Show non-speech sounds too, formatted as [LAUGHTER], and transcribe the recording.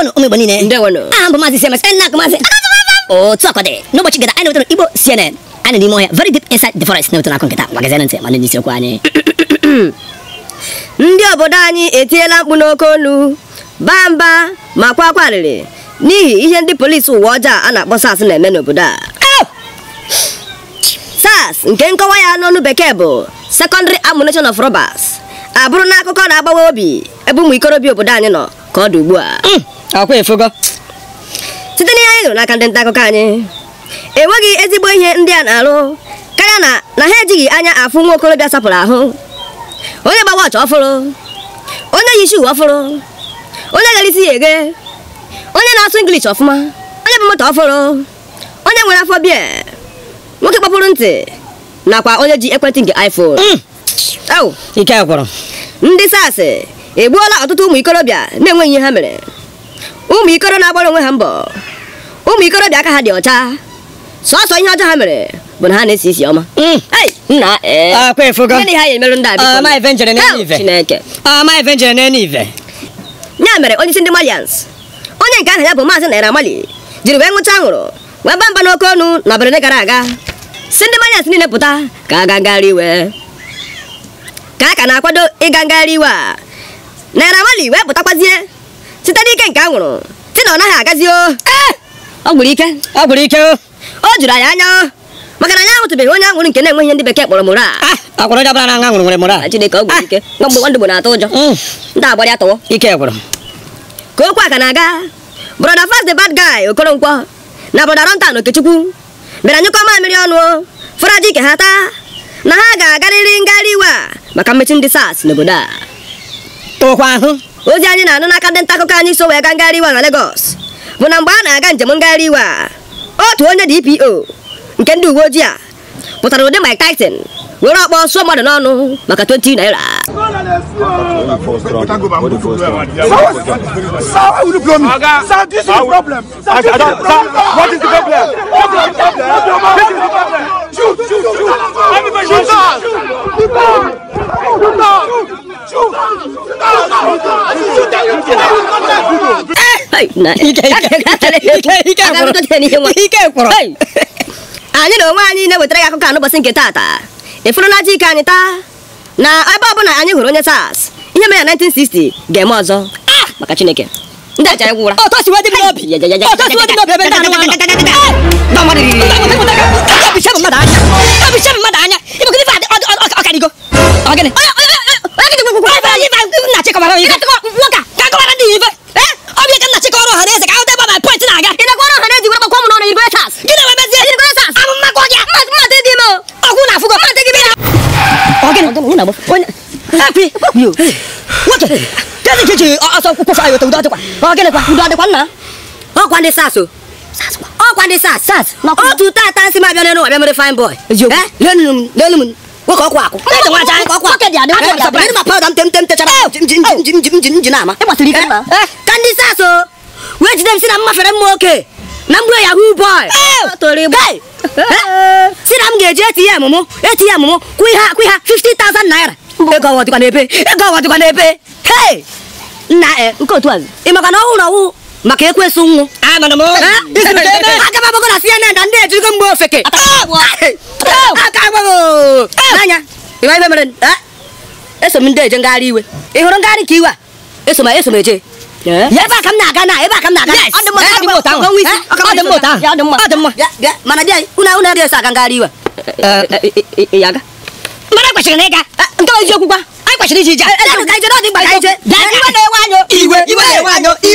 wano ume bonine nde wano ambo ah, mazi cms enna ko mazi [LAUGHS] o oh, de. no bo chigada ene ibo cnn ane di moya very deep inside the forest ne wotano akon kita magazine nse mane ni siro ne. ane [CLEARS THROAT] ndị obodo anyị etiela mkpu n'oke olu kwa akwarịrị n'ihi ihe ndi polisi ụwa ọjọọ a na-akpọ sars na-eme n'obodo a nke nkọwa ya n'ọnụ bekee secondary ammunition of robbers abụrụ na akụkọ na-agbawa obi ebe ụmụ ikorobịa obodo anyị ka a mm. akwa efogo. site n'ihe anyị nụrụ n'aka ndị nta akụkọ anyị enweghị ezigbo ihe ndị a na-arụ karịa na na ha ejighị anya afụ nwa okorobịa sapụrụ ahụ onye gba wọchị ọfụrụ onye yi shuu ọfụrụ onye gara isi ya eghe onye na-asụ ingilish ọfụma onye bụ moto ọfụrụ onye nwere afọ bịa, nwoke kpọpụrụ ntị nakwa onye ji ekwentị nke iphone mm. ike gwụrụ ndị sars egbuola ọtụtụ ụmụ ikorobịa na-enweghị ihe ha mere ụmụ na-agbara onwe ha mbọ ụmụ ikorobịa aka ha dị ọcha sọsọ ihe ọjọọ ha mere bụ na ha na-esi isi ọma ya mere onye isi ndị malians onye nke aha ya bụ maazị naira mali jiri wee nwụcha anwụrụ wee ba mba n'oke ọnụ n'abalị gara aga si ndị malians niile pụta ka a ga iwe ka a ka na-akwado ịga ngagharị iwe a naira mali wee pụtakwazie site n'ike nke anwụrụ si na ọ naghị agazi o ọ gwụrụ ike ọ gwụrụ ike o juru anyị anya maka na anyị ahụtụbeghị onye anwụrụ nke na-enweghị ndị bekee kpọrọ moral akwụrụ jabara na anwụrụ nwere moral ah, Chineke ọ gwụrụ ike mgbe ah. nwa ndụgbo na-atụ ụjọ mm. ndị agbarị atọwọ ike gwụrụ ka okwu a ka na-aga brọda fast the bad guy Okoronkwo na brọda Rontan Okechukwu bịara nyụkọ mmiri ọnụ fọrọji ike ha taa na ha ga-agarịrị ngarị iwe a maka mmechi ndị SARS n'obodo a tụkwa ahụ ozi anyị na-anụ n'aka ndị nta akụkọ bo so wee gaa Maka 20 na Lagos bụ na mgbe a na-aga njem ngagharị iwe a otu onye DPO nke ndị uwe ojii Shoot! Shoot! Shoot! Shoot! Tyson Shoot! Shoot! Shoot! Shoot! Shoot! maka Shoot! naira Shoot! Shoot! Shoot! anyị na onwe anyị na-ewetara ya akụkọ anụbọchị nke tata ịfụrụ na aja ike anyị taa na ebe ọbụla anyị hụrụ onye SARS ihe mere na 1960 ga-eme ọzọ maka Chineke ndị aja ya gwụra mmadụ anya kan ngena bos kon api yo what kan ke je a so ko fa ayo to da to kwa o ke le kwa do de kwa na o kwa de sao, saso o kwa de sas sas o tu ta ta si ma bia no bia mo fine boy eh lenu lenu wo ko kwa ko ne de wa ja ko kwa ke dia de wa ja ne ma pa dam tem tem te chara jim jim jim jim jim jim na ma e wa tri kan ma kan di saso we ji dem si na ma fere mo okay na mgbe yahoo boy si na m ga-eji ATM m ATM m kwụ ihe akwụ ha 50,000 naira ego ọwa dịkwa n'ebe ego ọwa dịkwa n'ebe nna e, nke otu azụ ị maka na ọwụ na ọwụ maka ekwesị nwụ aka gbago na CNN na ndị ejirigo mgbe ofeke aka gbago anya ịma ibe mere eso m ndị eje ngagharị iwe ị hụrụ ngagharị ka iwe a eso m eje ebe a ka m na-aga na ebe a ka m na-aga ọ dị mma ọ dị mma ọ dị mma mana bịa unu unu adịghị eso aga ngagharị iwe Mana kwesịrị na ịga nke eziokwu anyị kwesịrị iji ije na-ewe anya iwe iwe na-ewe